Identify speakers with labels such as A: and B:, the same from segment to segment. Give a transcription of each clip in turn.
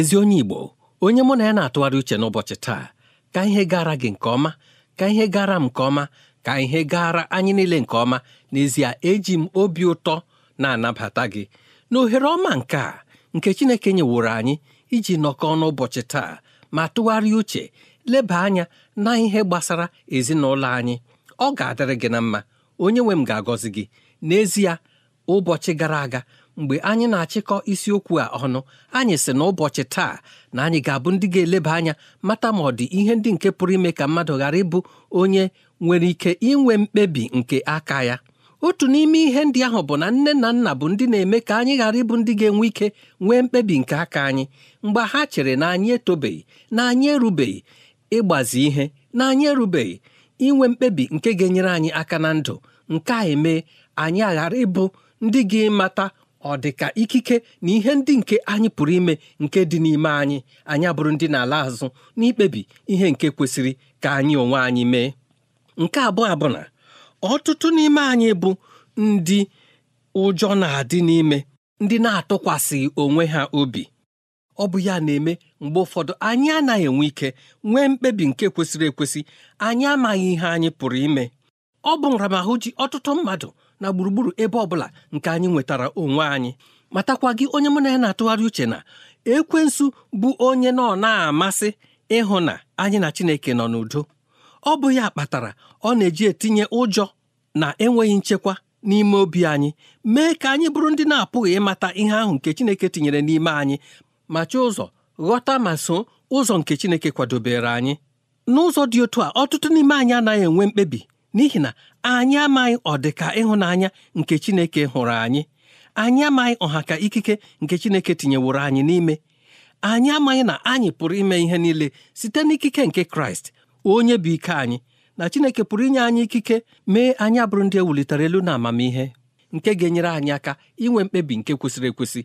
A: ezi onye Igbo onye mụ na ya na-atụgharị uche n'ụbọchị taa ka ihe gara gị nke ọma ka ihe gara m nke ọma ka ihe gara anyị niile nke ọma n'ezie eji m obi ụtọ na-anabata gị na ohere ọma nke a nke Chineke nyeworo anyị iji nọkọọ n'ụbọchị taa ma tụgharịa uche leba anya na ihe gbasara ezinụlọ anyị ọ ga-adịrị gị na mma onye nwe m ga-agọzi gị n'ezie ụbọchị gara aga mgbe anyị na-achịkọ isiokwu a ọnụ anyị sị na ụbọchị taa na anyị ga-abụ ndị ga-eleba anya mata ma ọ dị ihe ndị nke pụrụ ime ka mmadụ ghara ịbụ onye nwere ike inwe mkpebi nke aka ya otu n'ime ihe ndị ahụ bụ na nne na nna bụ ndị na-eme ka anyị ghara ịbụ ndị ga-enwe ike nwee mkpebi nke aka anyị mgbe ha chere na anyị etobeghị na anyị erubeghị ịgbazi ihe na anyị erubeghị inwe mkpebi nke ga-enyere anyị aka na ndụ nke a emee anyị aghara ịbụ ndị ga-emata ọ dị ka ikike na ihe ndị nke anyị pụrụ ime nke dị n'ime anyị anyị abụrụ ndị na-ala azụ n'ikpebi ihe nke kwesịrị ka anyị onwe anyị mee nke abụọ abụ na ọtụtụ n'ime anyị bụ ndị ụjọ na-adị n'ime ndị na-atụkwasịghị onwe ha obi ọ bụ ya na-eme mgbe ụfọdụ anyị anaghị enwe ike nwee mkpebi nke kwesịrị ekwesị anyị amaghị ihe anyị pụrụ ime ọ bụ nramahụ ji ọtụtụ mmadụ na gburugburu ebe ọbụla nke anyị nwetara onwe anyị matakwa gị onye mụ na ya na-atụgharị uche na ekwensu bụ onye nọ na-amasị ịhụ na anyị na Chineke nọ n'udo ọ bụ ya kpatara ọ na-eji etinye ụjọ na enweghị nchekwa n'ime obi anyị mee ka anyị bụrụ ndị na-apụghị ịmata ihe ahụ nke Chineke tinyere n'ime anyị ma chọọ ụzọ ghọta ma so ụzọ nke Chineke kwadobere anyị n'ụzọ dị otu a ọtụtụ n'ime anyị anaghị enwe mkpebi n'ihi na anyị amaghị ọdịka ịhụnanya nke Chineke hụrụ anyị anyị amaghị ọha ka ikike nke Chineke tinyeworo anyị n'ime anyị amaghị na anyị pụrụ ime ihe niile site n'ikike nke Kraịst onye bụ ike anyị na Chineke pụrụ inye anyị ikike mee anyị abụrụ ndị ewulitere elu na amamihe nke ga-enyere anyị aka inwe mkpebi nke kwesịrị ekwesị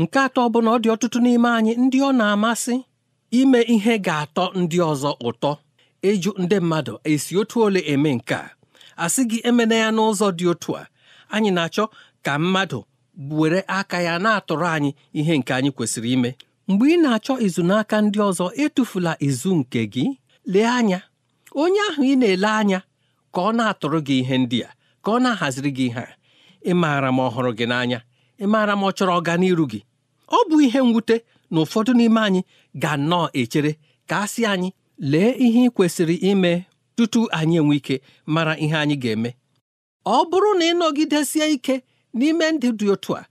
A: nke atọ bụ na ọ dị ọtụtụ n'ime anyị ndị ọ na-amasị ime ihe ga-atọ ndị ọzọ ụtọ ịjụ ndị mmadụ esi otu ole eme nke a asị gị emena ya n'ụzọ dị otu a anyị na-achọ ka mmadụ were aka ya na-atụrụ anyị ihe nke anyị kwesịrị ime mgbe ị na-achọ izu n'aka ndị ọzọ etufula izu nke gị lee anya onye ahụ ị na-ele anya ka ọ na-atụrụ gị ihe ndị a ka ọ na-ahaziri gị ihe a ị maara m ọhụrụ gị n'anya ị maara m ọ chọrọ ọganiru gị ọ bụ ihe mwute na ụfọdụ n'ime anyị ga nnọọ echere ka a sị anyị lee ihe ị kwesịrị ime tutu anyị enwe ike mara ihe anyị ga-eme ọ bụrụ na ịnọgidesie ike n'ime ndị dị otu a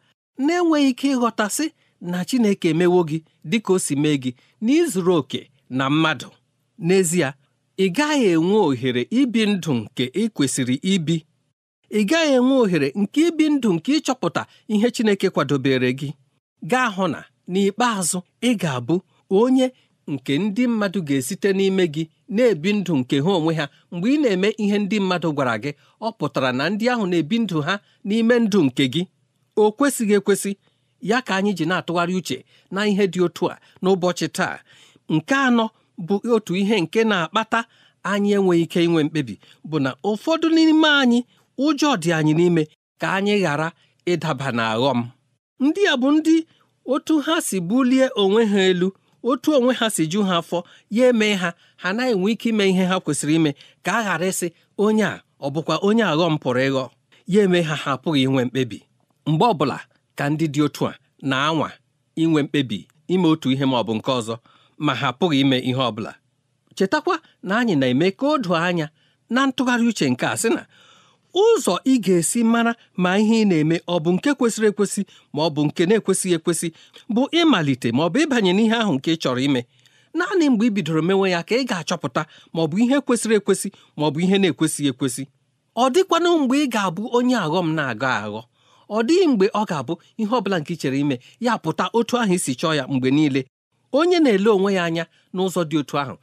A: na-enweghị ike ịghọtasị na Chineke emewo gị dịka o si mee gị n'izuru oke na mmadụ n'ezie ị gaghị enwe ohere ibi ndụ nke ị kwesịrị ibi ị gaghị enwe ohere nke ibi ndụ nke ịchọpụta ihe Chineke kwadobere gị gaa hụ na n'ikpeazụ ị ga-abụ onye nke ndị mmadụ ga-esite n'ime gị na-ebi ndụ nke ha onwe ha mgbe ị na-eme ihe ndị mmadụ gwara gị ọ pụtara na ndị ahụ na-ebi ndụ ha n'ime ndụ nke gị o kwesịghị ekwesị ya ka anyị ji na-atụgharị uche na ihe dị otu a n'ụbọchị taa nke anọ bụ otu ihe nke na-akpata anyị enweghị ike inwe mkpebi bụ na ụfọdụ n'ime anyị ụjọ dị anyị n'ime ka anyị ghara ịdaba n'aghọm ndị a bụ ndị otu ha si bulie onwe ha elu otu onwe ha si ju ha afọ ya eme ha ha anaghị enwe ike ime ihe ha kwesịrị ime ka a ghara ịsị onye a ọ bụkwa onye aghọm pụrụ ịghọ ya eme ha ha apụghị inwe mkpebi mgbe ọbụla ka ndị dị otu a na-anwa inwe mkpebi ime otu ihe ma ọ bụ nke ọzọ ma ha apụghị ime ihe ọbụla chetakwa na anyị na-eme ka o anya na ntụgharị uche nke a sị na ụzọ ị ga-esi mara ma ihe ị na-eme ọ bụ nke kwesịrị ekwesị ma ọ bụ nke na-ekwesịghị ekwesị bụ ịmalite ma ọ bụ ịbanye n'ihe ahụ nke ị chọrọ ime naanị mgbe ị bidoro mewe ya ka ị ga-achọpụta ma ọ bụ ihe kwesịrị ekwesị ma ọ bụ ihe na-ekwesịghị ekwesị ọ dịkwana mgbe ị ga-abụ onye aghọm na-agọ aghọ ọ dịghị mgbe ọ ga-abụ ihe ọ bụla nke ị chere ime ya pụta otu ahụ isi chọọ ya mgbe niile onye na-ele onwe ya anya n'ụzọ dị otu ahụ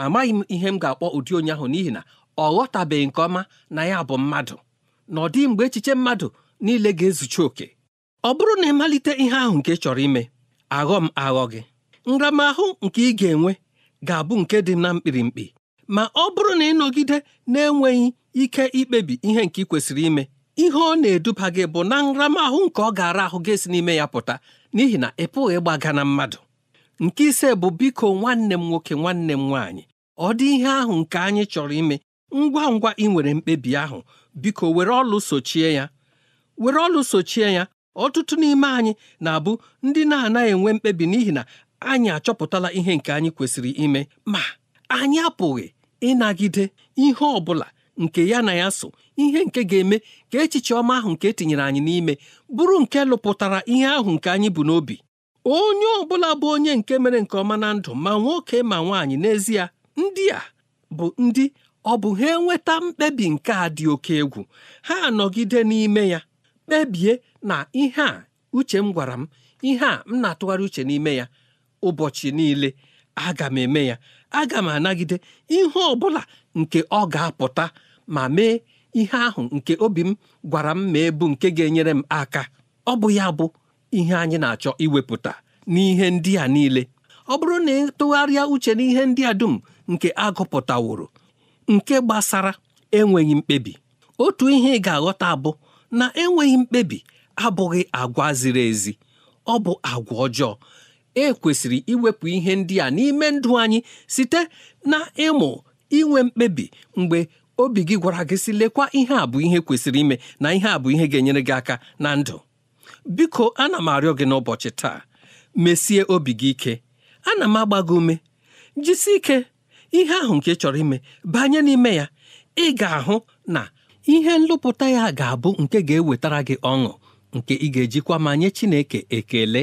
A: amaghị m ihe m ga-akpọ ụdị onye ahụ n'ihi na ọ ghọtabeghị nke ọma na ya bụ mmadụ na ọ dịghị mgbe echiche mmadụ niile ga-ezuchi oke ọ bụrụ na ịmalite ihe ahụ nke chọrọ ime aghọ m aghọ gị nramahụ nke ị ga-enwe ga-abụ nke dị na mkpirimkpi ma ọ bụrụ na ịnọgide na-enweghị ike ikpebi ihe nke ị kwesịrị ime ihe ọ na-eduba gị bụ na nramahụ nke ọ gara ahụ ga esi n'ime ya pụta n'ihi na ị pụghị ịgbaga na mmadụ nke ise bụ biko nwanne m nwoke nwanne m nwaanyị ọ dị ihe ahụ nke anyị chọrọ ime ngwa ngwa ị nwere mkpebi ahụ biko were ọlụ sochie ya were ọlụ sochie ya ọtụtụ n'ime anyị na-abụ ndị na-anaghị enwe mkpebi n'ihi na anyị achọpụtala ihe nke anyị kwesịrị ime ma anyị apụghị ịnagide ihe ọ bụla nke ya na ya so ihe nke ga-eme ka echiche ọma ahụ nke etinyere anyị n'ime bụrụ nke lụpụtara ihe ahụ nke anyị bụ n'obi onye ọbụla bụ onye nke mere nke ọma na ndụ ma nwoke ma nwaanyị n'ezie ndị a bụ ndị ọ bụ ha enweta mkpebi nke a dị oke egwu ha anọgide n'ime ya kpebie na ihe a uche m gwara m ihe a m na-atụgharị uche n'ime ya ụbọchị niile aga m eme ya aga m anagide ihe ọ bụla nke ọ ga-apụta ma mee ihe ahụ nke obi m gwara m ma ebu nke ga-enyere m aka ọ bụ ya bụ ihe anyị na-achọ iwepụta n'ihe ndị a niile ọ bụrụ na ịtụgharịa uche n'ihe ndị a dum nke agụpụtaworo nke gbasara enweghị mkpebi otu ihe ị ga-aghọta abụ na enweghị mkpebi abụghị agwa ziri ezi ọ bụ agwa ọjọọ e kwesịrị iwepụ ihe ndị a n'ime ndụ anyị site na ịmụ inwe mkpebi mgbe obi gị gwara gị si lekwa ihe a bụ ihe kwesịrị ime na ihe a bụ ihe ga-enyere gị aka na ndụ biko ana m arịọ gị n'ụbọchị taa mesie obi gị ike ana m agba gị ume jisie ike ihe ahụ nke chọrọ ime banye n'ime ya ị ga-ahụ na ihe nlụpụta ya ga-abụ nke ga-ewetara gị ọṅụ nke ị ga-ejikwa ma nye Chineke ekele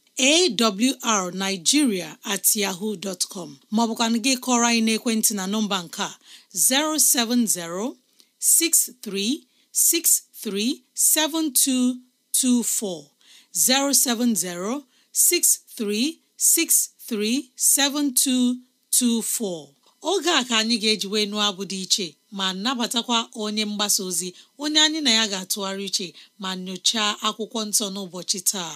B: awrnigeria at yahoo dot com gị kọrọ anyị n'ekwentị na nọmba nke a 070 6363 7224 070 7224 oge a ka anyị ga-eji wee nụọ abụ dị iche ma nabatakwa onye mgbasa ozi onye anyị na ya ga-atụgharị iche ma nyochaa akwụkwọ nsọ n'ụbọchị taa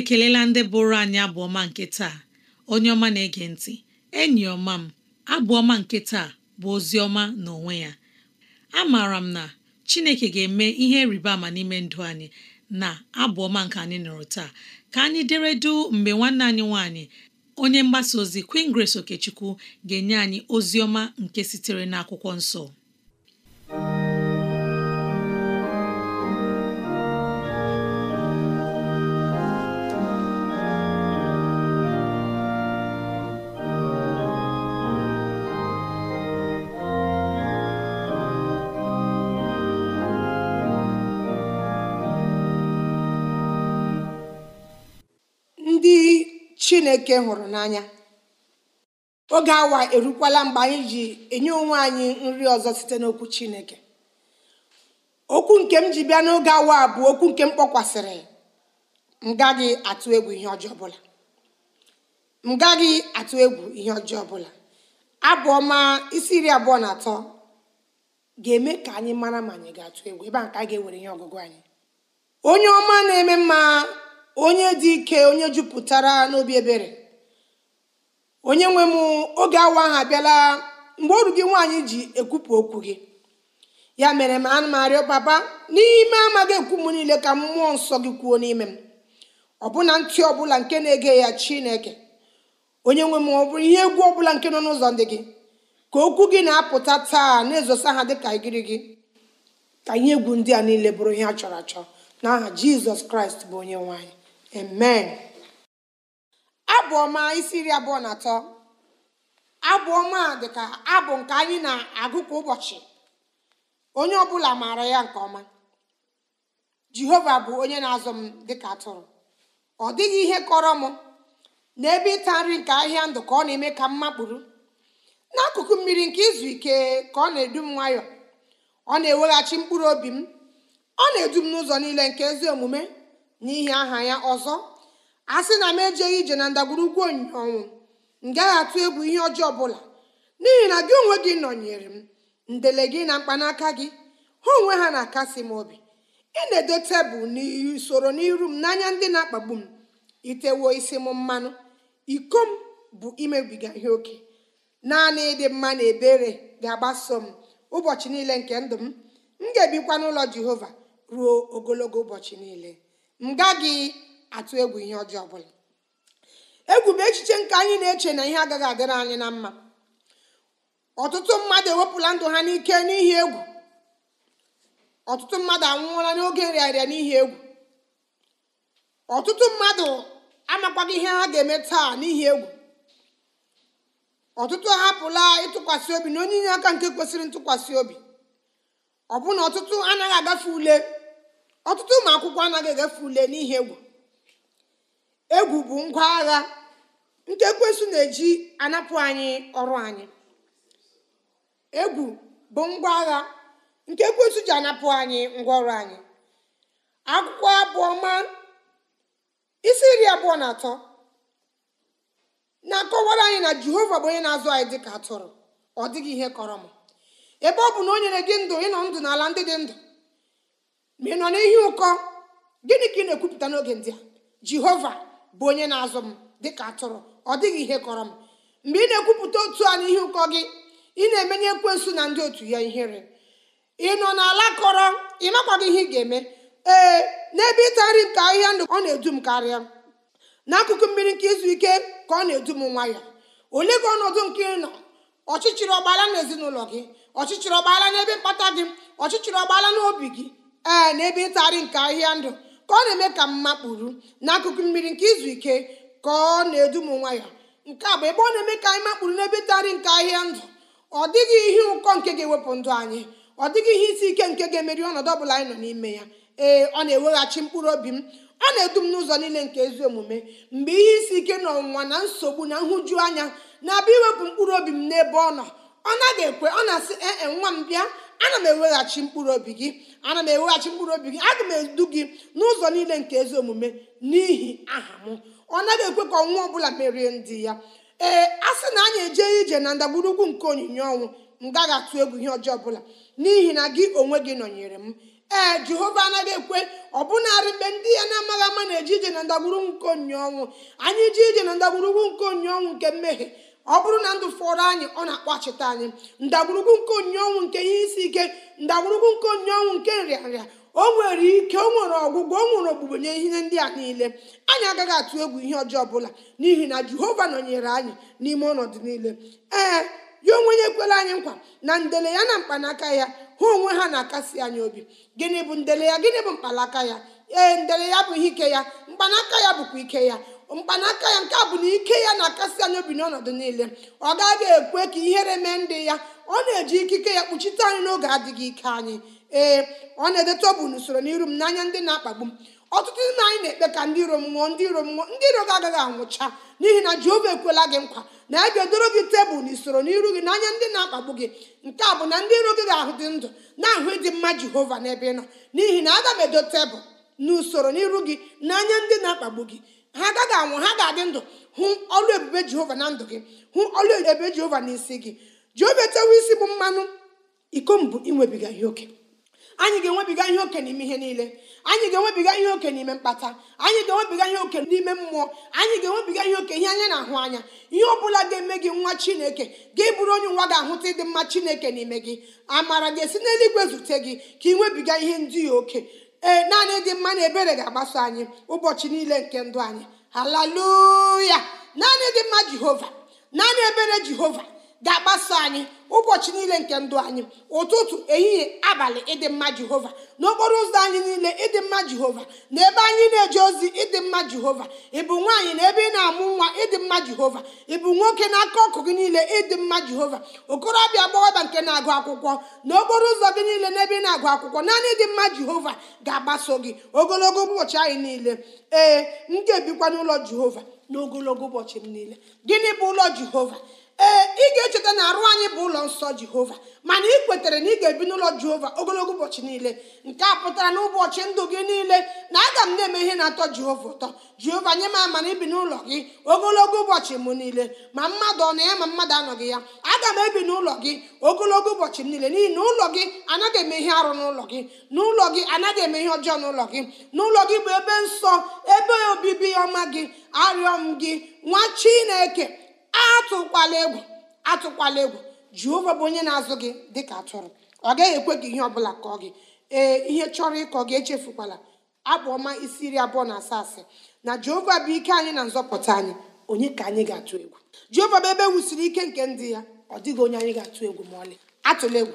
B: ekelela ndị bụrụ anyị abụọma nke taa onye ọma na-ege ntị enyi ọma m abụọma nke taa bụ ozi ọma n'onwe ya amaara m na Chineke ga-eme ihe rịba ama n'ime ndụ anyị na abụọma nke anyị nụrụ taa ka anyị deredu mgbe nwanne anyị nwanyị onye mgbasa ozi Queen Grace Okechukwu ga-enye anyị ozi ọma nke sitere n'akwụkwọ nsọ
C: chineke hụrụ n'anya oge awa erukwala mgbe anyị ji enye onwe anyị nri ọzọ site n'okwu chineke okwu nke m ji bịa n'oge awa bụ okwu nke m kpọkwasịrị m gaghị atụ egwu ihe ọjọọ ọbụla m gaghị atụ egwu ihe ọjọọ ọbụla isi iri abụọ na atọ ga-eme ka anyị mara ma anyị ga-atụ egwu ebe a ka a ga-ewere ihe ọgụgụ anyị onye ọma na-eme mma onye dị ike onye jupụtara n'obi ebere onye nwe m oge awa ahụ abịala mgbe ọrụ gị nwaanyị ji ekwupụ okwu gị ya mere m anụ m arịọ papa n'ime amaghị ekwu m niile ka mmụọ nsọ gị kwuo n'ime m ọbụna ntị ọbụla nke na-ege ya chineke onye nwe m ọ bụrụ ihe egwu ọbụla nke nọ n'ụzọ ndị gị ka okwu gị na-apụta taa na-ezosa ha dịka igiri gị ka ihe egwu ndị a niile bụrụ ihe a chọrọ achọ n'aha jizọs kraịst bụ onye nwaanyị amen abụ ọma isi iri abụọ na atọ abụ ọma dịka abụ nke anyị na-agụ kwa ụbọchị onye ọbụla maara ya nke ọma jehova bụ onye na-azụ m dịka atụrụ ọ dịghị ihe kọrọ m n'ebe ịta nri nke ahịa ndụ ka ọ na-eme ka m makpụrụ n'akụkụ mmiri nke izu ike ka ọ na-edu m nwayọọ ọ na-eweghachi mkpụrụ obi m ọ na-edu m n'ụzọ niile nke ezi omume n'ihi aha ya ọzọ a sị na m ejeghị ije na ndagwurugwu onyinye ọnwụ m gaghị atụ egwu ihe ọjọọ ọbụla n'ihi na gị onwe gị nọnyere m ndele gị na mkpanaka gị ha onwe ha na-akasi m obi ị na-edo tebụl n'usoro n'iru m n'anya ndị na-akpagbu m itewo isi m mmanụ iko m bụ imebiga ihe oke naanị ịdị mma na ebere ga-agbaso m ụbọchị niile nke ndụ m m ga-ebikwa n'ụlọ jehova ruo ogologo ụbọchị niile m gaghị atụ egwu ihe ọjọọ ọbụla egwu bụ echiche nke anyị na-eche na ihe agaghị adịrị anyị na mma ọtụtụ mmadụ ewepụla ndụ ha n'ike n'ihi egwu ọtụtụ mmadụ anwụọla n'oge nrịarịa n'ihi egwu ọtụtụ mmadụ amakwaghị ihe ha ga-eme taa n'ihi egwu ọtụtụ ahapụla ịtụkwasị obi na onye inye aka nke kwesịrị ntụkwasị obi ọbụna ọtụtụ anaghị agafe ule ọtụtụ ụmụ akwụkwọ anaghị egafe ule n'ihi egwu egwu bụ ngwa agha nke ekwensu na-eji anapụ anyị ọrụ anyị egwu bụ ngwa agha nke ji anapụ anyị ngwa ọrụ anyị akwụkwọ abụọma isi nri abụọ na atọ na-akọwara anyị na jehova bụ onye na-azụ anyị dịka atụrụ ọ dịghị ihe kọrọ m ebe ọ bụ na o nyere gị ndụ ịnọ ndụ n'ala ndị dị ndụ ma ị nọ n'ihi ụkọ gịnị ka ị na-ekwupụta n'oge ndị a jehova bụ onye na-azụ m dịka atụrụ ọ dịghị ihe kọrọ m mgbe ị na-ekwupụta otu a n'ihi ụkọ gị ị na-emenye ekwensu na ndị otu ya ihere ị nọ n'ala kọrọ ị makwaghị ihe ị ga-eme ee n'ebe ịta nri ka ahịhịa ndụ ọ na-edu m karịa n'akụkụ mmiri nke izu ike ka ọ na-edu m nwayọọ ole gị ọnọdụ nke ị nọ ọchịchịrị ọgbaala n'ezinụlọ gị ọchịchịrị ọgbaala n'ebe mkpata gị ọchịchịrị ọgbaala n'obi gị ee na ebe ịtagharị nke ahịa ndụ ka ọ na-eme ka mma kpuru n'akụkụ mmiri nke izu ike ka ọ na-edu m ya nke a bụ ebe ọ na-eme ka anyị makpuru n'ebe ịtagharị nke ahịa ndụ ọ dịghị ihe ụkọ nke ga-ewepụ ndụ anyị ọ dịghị ihe isi ike nke ga-emeri ọnọdụ bụla anyị nọ n'ime ya ee ọ na-eweghachi mkpụrụ obi m ọ na-edu m n'ụzọ niile nke ezi omume mgbe ihe isi ike na ọnwụnwa na nsogbu na nhụju anya na-abịa iwepụ mkpụrụ obi m n'ebe ọ nọ ọ naghị ekwe ọ na-asị ee e, nwa m bịa ana m eweghachi mkpụrụ obi gị ana m eweghachi mkpụrụ obi gị aga m edu gị n'ụzọ niile nke ezi omume n'ihi aha m ọ naghị ekwe ka ọnwa ọbụla merie ndị ya ee a sị na anyị eje ije na ndagburugwu nke onyinye ọnwụ m gaghị atụ egwu ihe ọjọọ ọbụla n'ihi na gị onwe gị nọnyere m ee jehova anaghị ekwe bụnarị mgbe ndị ya na-amaghị ama na-eje ije na ndagburugwu nke onyinye ọnwụ anyị ije ije na ndagburugwu nke onyinye ọnwụ nke mmehie ọ bụrụ na ndụ fọrọ anyị ọ na-akpọchite anyị ndagwurugwu nke onye ọnwụ nke ihe isi ike ndagwurugwu nke onye ọnwụ nke nrịanrịa o nwere ike o nwere ọgwụgwọ o nwere ogbugbo nye ihe ndị a niile anyị agaghị atụ egwu ihe ọjọọ ọbụla n'ihi na jehova nọnyere anyị n'ime ọnọdụ niile ee ya onwe ya ekwela anyị nkwa na ndele ya na mkpanaka ya ha onwe ha na-akasi anyị obi gịnị bụ ndele ya gịnị bụ mkpanaka ya ee ndele ya bụ ihe ike ya mkpanaka ya bụkwa ike ya mkpanaka ya nke a bụ na ike ya na-akasi anya obi n'ọnọdụ niile ọ gaghị ekwe ka ihere mee ndị ya ọ na-eji ikike ya kpuchite anyị n'oge adịghị ike anyị ee ọ na-edeta bụ n'usoro n'iru m n'anya ndị na-akpagbu m ọtụtụ ndị anyị na-ekpe ka ndị iro m nwụọ ndị iro m nwụọ ndị iro gị agaghị anwụcha n'ihi na Jehova ekwela gị nkwa na ya e ga-edoro gị tebụl n'usoro n'iru gị n'anya ndị na-akpagbu gị nke a bụ na ndị iro gị ga-ahụ dị ndụ na-ahụ ịdị mma Jehova n'ebe ị nọ n'ihi na aga m edo tebụl n'usoro n'iru gị n'anya ndị na-akpagbu gị ha agaghị anwụ ha ga-adị ndụ hụ ọlụ ebube jehova na ndụ gị hụ ọlụ ebube jehova na gị jehova etewe isi bụ mmanụ iko mbụ inwebiga ihe oke anyị ga-enwebiga ihe oke n'ime ihe niile anyị ga-enwebiga ihe oke n'ime mkpata anyị ga-enwebiga ihe oke n'ime mmụọ anyị ga-enwebiga ihe oke ihe anya na-ahụ anya ihe ọ bụla ga-eme gị nwa chineke ga-eburu onye nwa ga-ahụta ịdị mma chineke n'ime gị amara ga-esi n'eluigwe zute gị ka ị nwebiga ihe ndị ya oke ee eh, naanị dị mma na ebere ga-agbaso anyị ụbọchị niile nke ndụ anyị haleluya naanị dị mma jehova naanị ebere jehova ga agbaso anyị ụbọchị niile nke ndụ anyị ụtụtụ ehihie abalị ịdị mma jehova n'okporo ụzọ anyị niile ịdị mma jehova na ebe anyị na-eje ozi ịdị mma jehova ịbụ nwaanyị na ebe ị na-amụ nwa ịdị mma jehova ịbụ nwoke n'aka ọkụ gị niile ịdị mma jehova okorobịa gbawaba nke na-agụ akwụkwọ n'okporo ụzọ gị niile na ebe ị na-agụ akwụkwọ naanị ịdị mma jehova ga-agbaso gị ogologo ụbọchị anyị niile ee m ga-ebikwa n'ụlọ jehova n'ogologo ụbọchị m niile gịnị bụ ụlọ jehova ee ị ga-echeta na arụ anyị bụ ụlọ nsọ jehova mana ị kwetere na ị ga-ebi n'ụlọ jehova ogologo ụbọchị niile nke a pụtara na ụbọchị ndụ gị niile na aga m na-eme ihe na-atọ jehova ụtọ jehova nye m amana ibi n'ụlọ gị ogologo ụbọchị m niile ma mmadụ ọ na ya ma mmadụ anọghị ya aga m ebi n'ụlọ gị ogologo ụbọchị m niile n'ihi na ụlọ gị anaghị eme ihe arụ n'ụlọ gị n'ụlọ gị anaghị eme ihe ọjọọ n'ụlọ gị n'ụlọ gị bụ ebe nsọ ebe obibi ọma gị arịọ m gị nwa chineke atụkwala egwu atụkwala egwu jehova bụ onye na-azụ gị dịka atụrụ ọ gaghị ekwe gị ihe ọbụla kọọ gị ee ihe chọrọ ịkọ gị echefukwala abụ ọma isi iri abụọ na asaa asị na jehova bụ ike anyị na nzọpụta anyị onye ka anyị ga-atụ egwu jehova bụ ebe e wusiri ike nke ndị ya ọ dịghị onye anyị ga-atụ egwu ma ọlị atụla egwu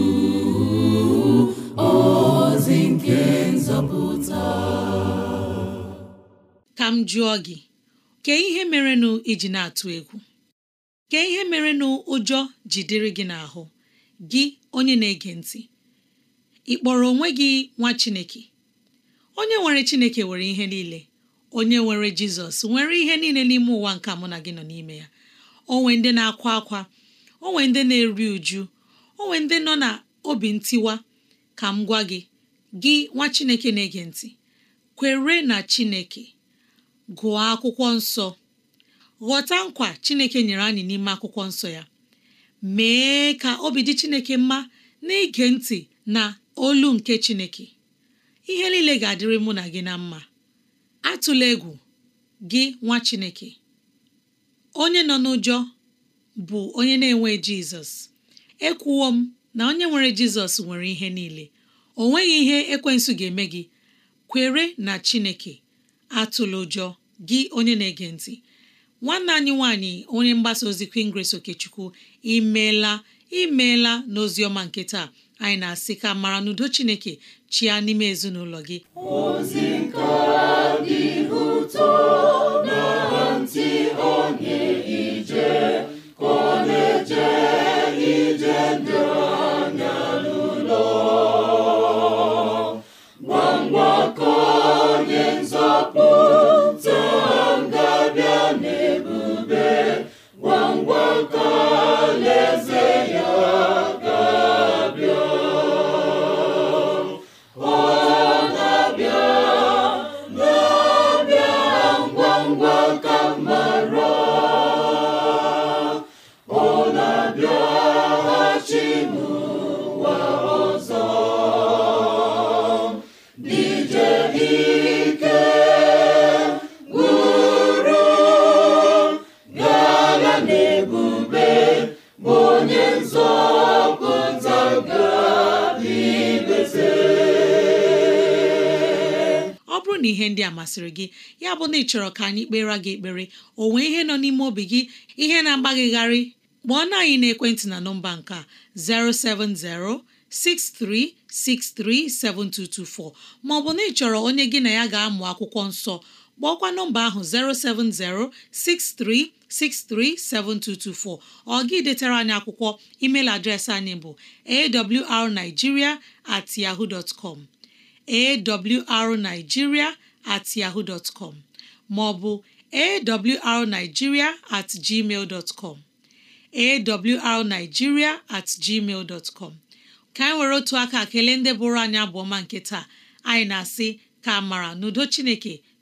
B: ka m jụọ gị kee ihe merenụ iji na-atụ egwu Kee ihe merenụ ụjọ jidere gị n'ahụ gị onye na-ege ntị ị kpọrọ onwe gị nwa Chineke onye nwere Chineke nwere ihe niile onye nwere Jizọs nwere ihe niile n'ime ụwa nke mụ na gị nọ n'ime ya onwe ndị na-akwa akwa onwe ndị na-eri uju onwe ndị nọ na obi ntiwa ka m gwa gị gị nwa Chineke na-ege ntị kwere na Chineke gụọ akwụkwọ nsọ ghọta nkwa Chineke nyere anyị n'ime akwụkwọ nsọ ya mee ka obi dị Chineke mma na-ege ntị na olu nke Chineke ihe niile ga-adịrị mụ na gị na mma atụla egwu gị nwa Chineke onye nọ n'ụjọ bụ onye na-enwe Jizọs ekwuwo m na onye nwere jizọs nwere ihe niile o nweghị ihe ekwensu ga-eme gị kwere na chineke atụla ụjọ gị onye na-ege ntị nwanne anyị nwanyị onye mgbasa ozi Queen Grace Okechukwu imeela imeela n'ozi ọma nke taa anyị na-asị ka mara n'udo chineke chia n'ime ezinụlọ gị
D: ozi nke dị ụtọ ọ
B: bụrụ na ihe ndị a masịrị gị ya bụ na ị chọrọ ka anyị kpere gị ekpere o nwee ihe nọ n'ime obi gị ihe na-agbaghịgharị kpọọ na anyị na nọmba nke 0706363724 070 6363 ma ọ bụ na ị chọrọ onye gị na ya ga-amụ akwụkwọ nsọ kpọọkwa nọmba ahụ 07063637224 ọ gị detara anyị akwụkwọ email adreesị anyị bụ awrnigeria at yahoo dot com awrnigeria at yahoo dot com maọbụ awrnigeria at gmail com awrnigeria at gmail dot com ka anyị nwere otu aka kelee ndị bụrụ anyị abụọma nke taa anyị na-asị ka mara n'udo Chineke